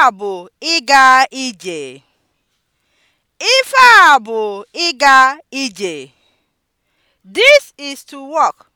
a bụ ịga ije. Ife a bụ ịga ije. This is to walk.